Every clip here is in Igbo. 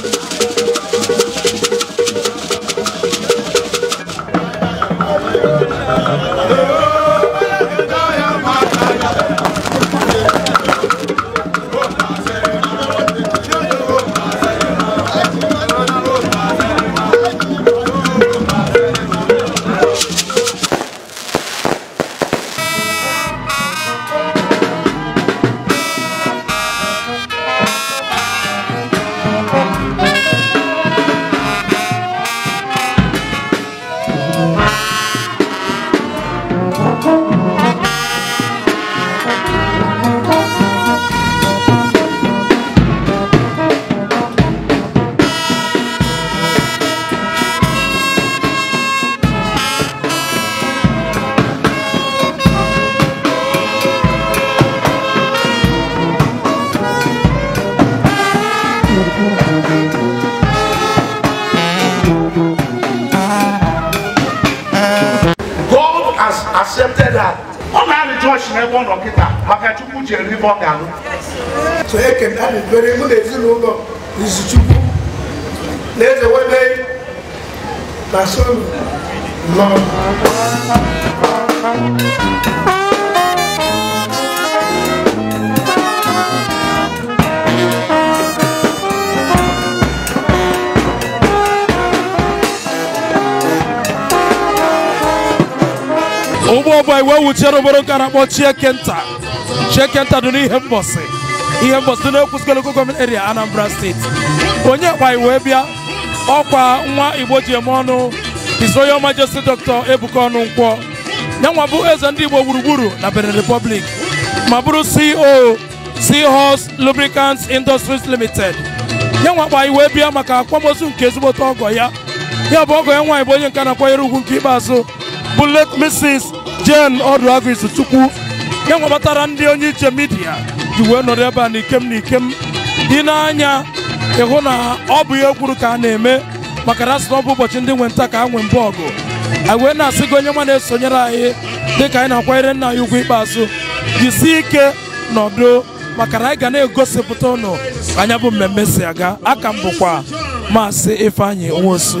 Música accepted her. ọ na-alị jọọchị n'ebe ọ nọ kịta maka chukwu ji eri ibe ọ ga-alụ so ekena na-ebere ezinụlọ izu chukwu na eze na sonu nọ ọ bụ anyị wee wuchiere obere ụka na-akpọ chiekenta chiekenta dị n'ihe mbọsị ihe mbọsị dị n'ekwusikọl gọọment eria anambra steeti onye anyị wee bịa ọkwa nwa igbo ji eme ọnụ his royal majesty dr ebuka ọnụ nkwọ nwa bụ eze ndị igbo gburugburu na benin republic ma bụrụ ceo seahorse lubricants industries limited nwa nyanwa anyị wee bịa maka akwamozu nke ezigbote ọgọ ya ya bụ ọgọ ya nwaanyị bụ onye nke na-akwanyere ugwu nke ikpeazụ bụ late mrs jen ọdụ agụ isi chukwu ya ndị onye iche midia ji wee nọrọ ebe a na ikem na dị n'anya ịhụ na ọ bụ ihe kwuru ka a na-eme maka na asị na ọ bụ ụbọchị ndị nwe nta ka a nwe mbụ ọgụ anyị wee na-asị gị onye nwa na-esonyere anyị dị ka anyị na-akwanyere nna anyị ugwu ikpeazụ jisi ike nọdụ maka na anyị ga na-egosipụta ụnụ anya bụ mmemme si aga aka m bụkwa maasị Ifeanyi Nwosu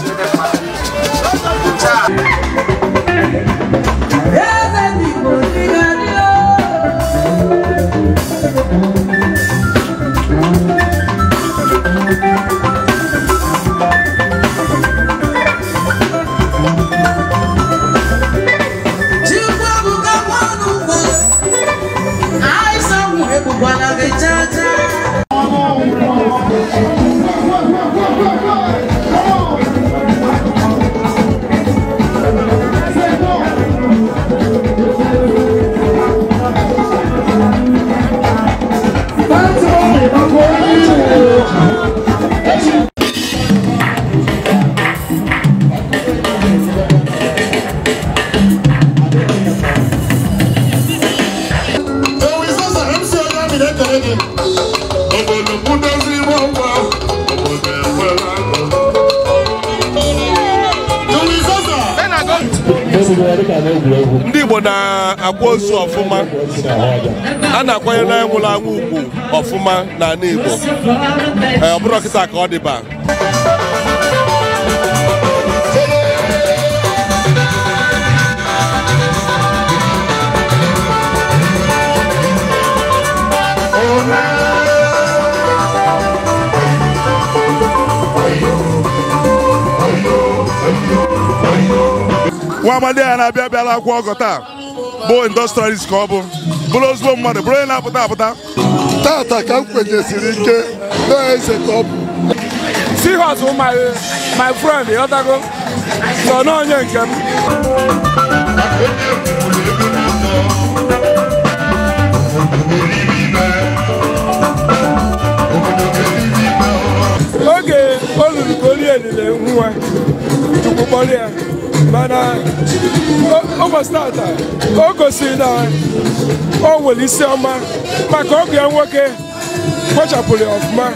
ndị Igbo na-akwa ozu ọfụma a na-akwanyere na anwụrụ anwụ ugwu ọfụma n'ala Igbo ọ bụrụ kịta ka ọ dịba Oh, nwa amadi ya na-abịa abịala akwụ ọgọ taa bụ industrialist ka ọ bụ bụrụ ozugbo mmadụ bụrụ onye na-apụta apụta tata ka m kwenyesiri ike na-eze ka ọ bụ sihos my friend ịghọtago sọ n'onye nke m oge o ruru ka olie elile nwa chukwu kpọrọ ya mana o gbasara taa o gosiri na o nwere isi ọma maka ọgụ ya nwoke kpochapụrụ ya ọfụma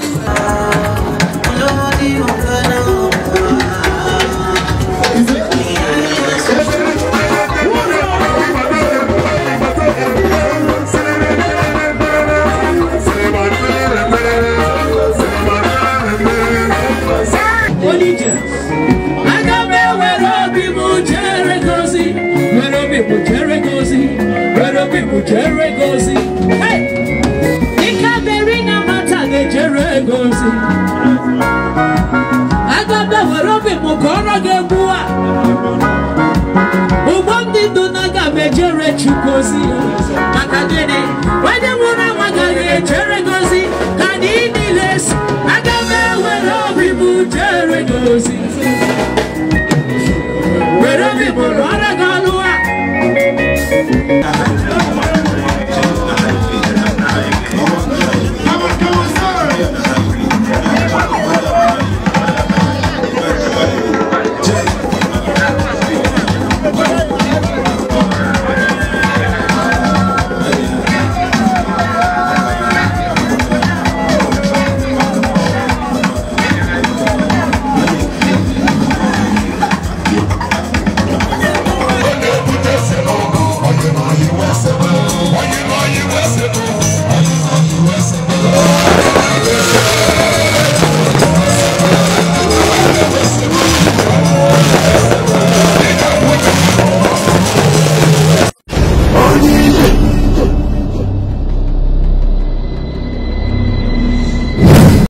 osi kakadede wẹ́n.